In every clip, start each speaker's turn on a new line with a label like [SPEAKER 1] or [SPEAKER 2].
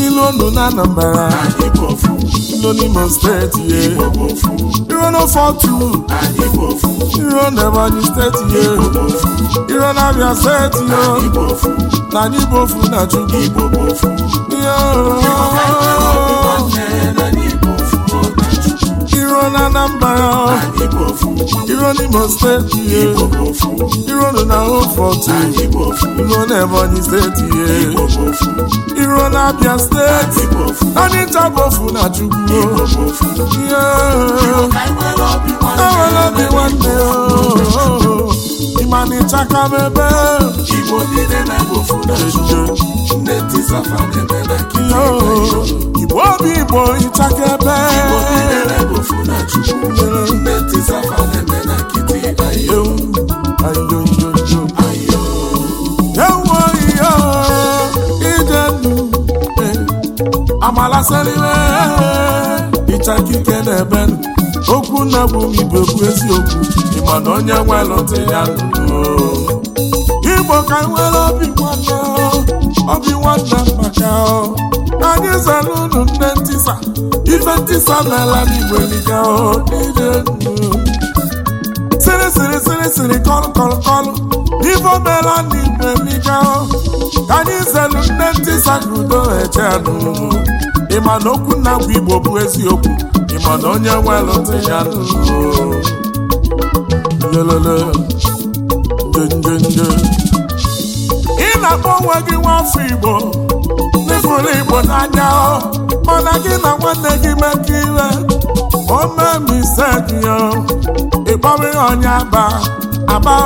[SPEAKER 1] ilu ndụ na Anambra ilu n'Imo steeti ye iro n'Ofọtu iro n'Ebonyi steeti ye iro n'Abia steeti yo na n'Igbofu na Chukwu na Anambra iro n'Imo steeti eh. ihe iro na Ofortu eh. iro n'Ebonyi steeti ihe eh. iro na Abia steeti anyị bofu na Chukwu ihe ewere obi nwanne ịmana ịchaka m ebe igbo obi igbo ịchaka ebe amalasịrịwe ịchaka ike na-ebe okwu nna bụ ibe okwu eziokwu na onye nwelụtụ ya nụo igbo ka nwere obi nwanne obi nwanne maka anyị zere unu nne ntịsa, ife ntịsa ntisa n'ala n'igbo liga niile siri siri siri siri kọlụ kọlụ kọlụ n'ife omela n'igbo liga ka anyị zere nne ntịsa ka udo ejenụ ịma na okwu na igbo bụ eziokwu ịma na onye nwe ntị ya ị na-akpọ onwe gị nwafọ igbo n'ịfụrụ igbo n'anya mana gị na nwanne gị mekọ iwe omemisegiyo ịkpọrọ ihe onye aba aba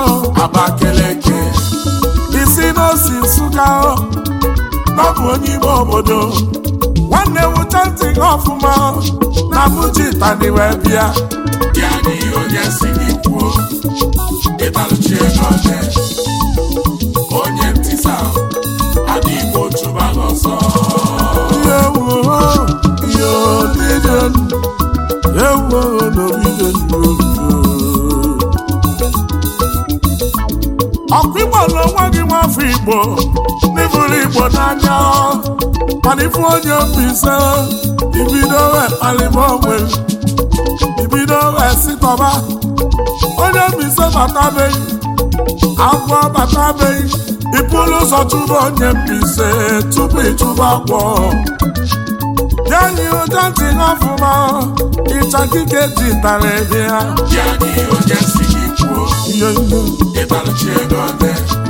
[SPEAKER 1] aba keleke isi n'osi nsụga ọ bụ onye ime obodo na-ewucha ntị gị ọfụma na mụji tani wee bịa ya n'ihe onye si gị kwuo ịbalụchi ego ọjọọ mana ifu onye mbise ibido wee kpalịba onwe ibido wee sitọba onye mbise batabeghị agwọ batabeghị ịpụrụ ụzọ chụba onye mbise tupu ịchụba agwọ yanyi ụja ntị n'ọfụma ịcha kike ji tara ebe ya yanyi ụja si gị kwuo ihe ihe ego ọdị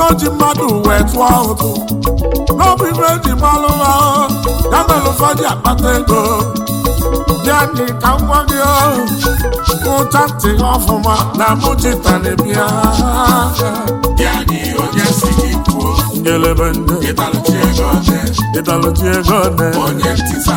[SPEAKER 1] n'oji mmadụ wee tụọ ụtụ n'ọbụ ibe eji malụ ha ya mere ụfọdụ akpata ego bịa ka nwa gị ụcha ntị ọfụma na mụchita na ịdalụchi ego ne onye ntịsa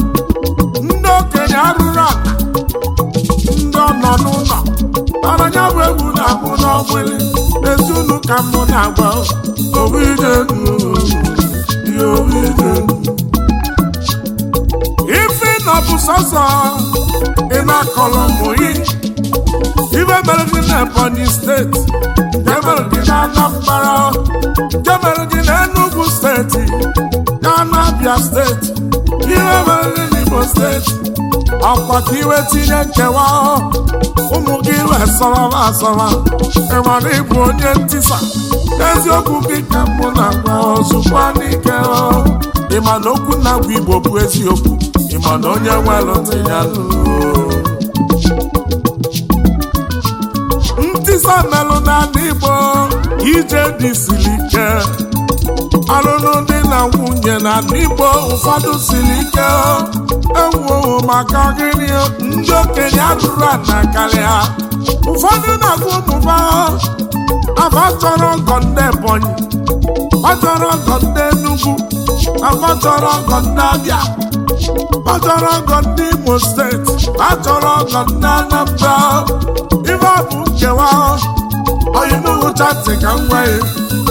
[SPEAKER 1] ọgbụlị ezunu ka mụ na-agba ife na bụ sọsọ ị na-akọlọ mụyi ibe mere gị na Ebonyi steeti nke mere na Anambra nke mere gị na Enugu steeti na anabia steeti ibe mere gị na Imo steeti akwa ka iwe tinye nkewa ụmụ gị wee sọrọba asọrọ ịmara ịbụ onye ntisa eziokwu gị ka mụ na-agwa ozugbo n'ike ịma na okwu na-agwa igbo bụ eziokwu ịma na onye nwelụtụ ya ntisa melụ n'ala igbo ije dị siri ike ọlụlụ dị na nwunye na n'igbo ụfọdụ siri ike ewuowo maka gịnị ndị okenye atụrụ ana karịa ụfọdụ na-agụ ụmụba afa chọrọ ndị Ebonyi ọ chọrọ ọgọ ndị Enugu afa chọrọ ọgọ ndị Abịa ọ chọrọ ọgọ ndị Imo steeti ọ chọrọ ọgọ ndị Anambra ife ọ bụ nkewa ọyinugwu chati ka m nwee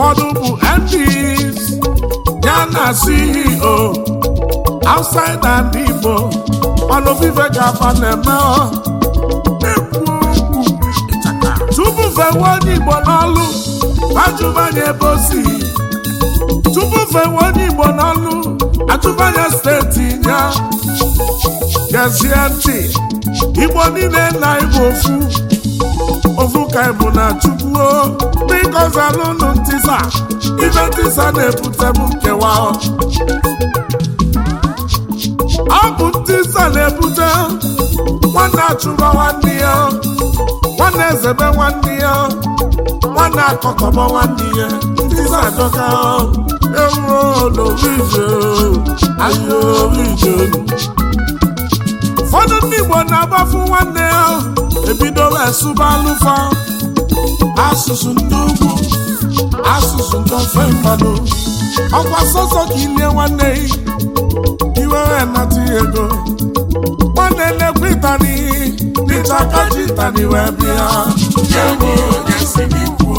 [SPEAKER 1] ụfọdụ bụ MPs ya na CEO outside and Igbo ọnụvive ga-aba na-eme tupu fewe onye Igbo n'ọlụ ajụmanya ebe o si tupu fewe onye Igbo n'ọlụ ajụmanya steeti ya gezie ntị Igbo niile na Igbo ofu ovuka bụ na chukwuo biko zalụnụ ntisa ibe ntisa na ebute bụ nkewa ọ bụ ntisa na-ebute nwanne achụba nwanne ya nwanne ezebe nwanne ya nwanne akọkọba nwanne ya ntisa adọka ewuro n'orije ahịa orije ụfọdụ ndị Igbo na-agbafu nwanne ya ebidola esụba alụfa asụsụ ndị ugwu asụsụ ndị ofe mmadụ ọkwa sọsọ ka ilie nwanne iwere nata ego na-elekwa ịtani n'ịta kaji ịtani wee bịa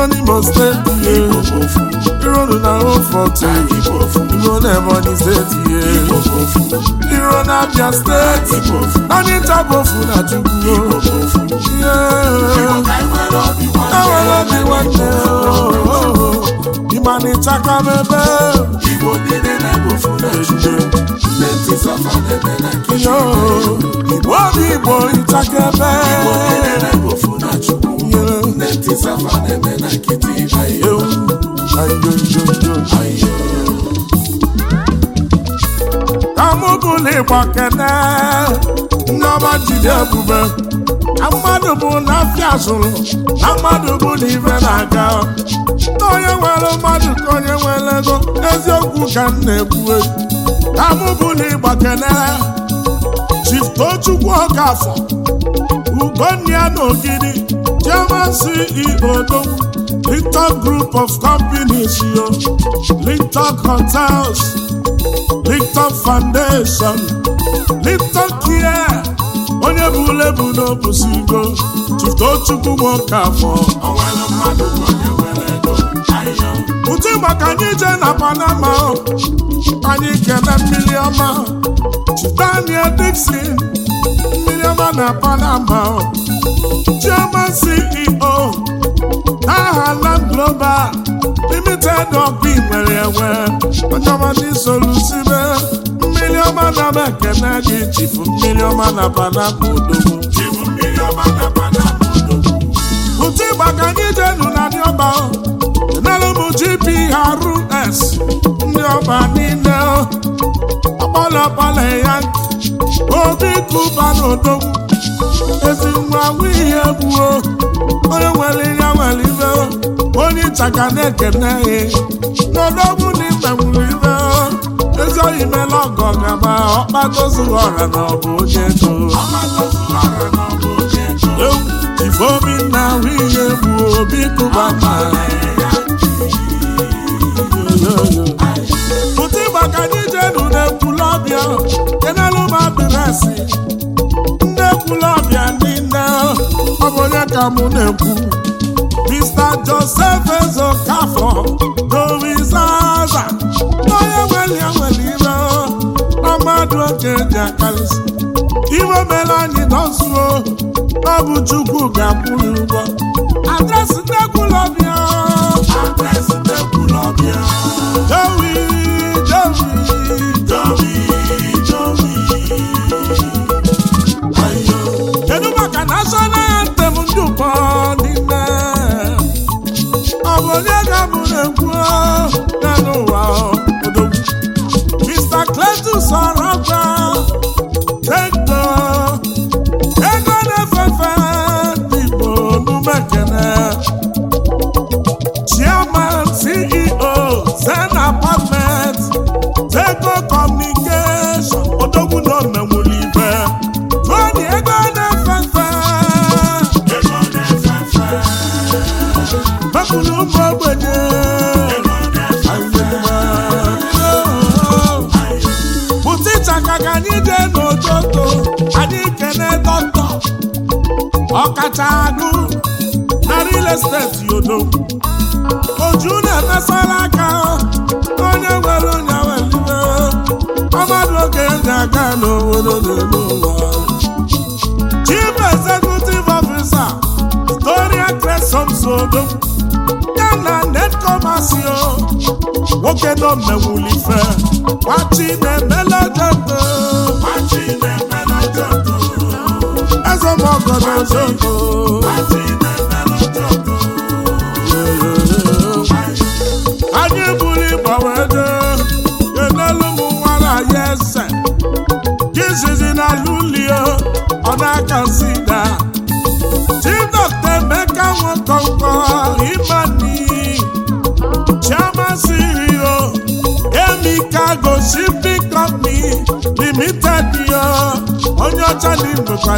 [SPEAKER 1] Iro steeti ihe Iro na Ofọte Iro na Ebonyi steeti Iro na steeti Naanị nta bụ na Chukwu Ewere obi nwanne Ịmanịcha ka Igbo niile na-ebu na Chukwu Igbo Igbo ịchakebe Igbo niile na na Chukwu gọọmenti safa na-eme na nkịtị ayo ayo kamụbụligba kene nneọma jide ebube na mmadụ bụ na afịa zụrụ na mmadụ bụ na ibe na-aga na nwere mmadụ ka onye nwere ego eziokwu ka m na-ekwu kamụbụligba kene Chief Tochukwu Okafọ Ugonna na Ogidi Chairman CEO Dogwu, Group of Companies yo, Linton Hotels, Linton Foundation, Linton Care, onye bụ lebu n'obusigo, Chiftochukwu Nwokafọ. Ụtụ maka anyị jee na Panama, anyị kene mmiri ọma, Daniel Dixon, mmiri ọma na Panama, ego mpi nwere enwe ọchọbọchị solusibe mmiri ọma na m ekene gị chifu mmiri ọma na panapụ odogwu ụtụ ịgba ka anyị jenu na ndị ọba enelu m gprs ndị ọba niile ọkpọlọkpọlọ ya obi kụba na odogwu ezi nwa ihe egbuo onye nwere ihe nwere ibe onye nta ka na-ekene ya n'ọdọgwụ na ịta nwụrụ ibe ezi oyi mela ọgọ gaba ọkpatozughị ọra na ọbụ onye ego ifeobi na bụ obi kụba ma ka na m ndị nne ọ bụ onye ka mụ na-ekwu Joseph Ezokafọ dowizaza n'onye nwere ya nwere ire na mmadụ oke dị akarịsị iwe mere anyị nọzuo ọ bụ Chukwu ga-akwụrụ ụgwọ adresị ndekwulọbịa adresị ndekwulọbịa dowi agụ na real estate yodo oju na-emesara aka onye nwere onye welibe ọmadụ oge ndị aga n'obodo n'elu ụwa chief executive officer Gloria Cresomsodo ya na netkomasio nwoke nọ mmewulife gbachi na-emele debe ogogo anyị buru ịgbanwe ego enelu m nwara jizizi lulio ọ na-aka emeka nwekọnkọ imani chiamasirio emika gosi bikọmpi onye ọcha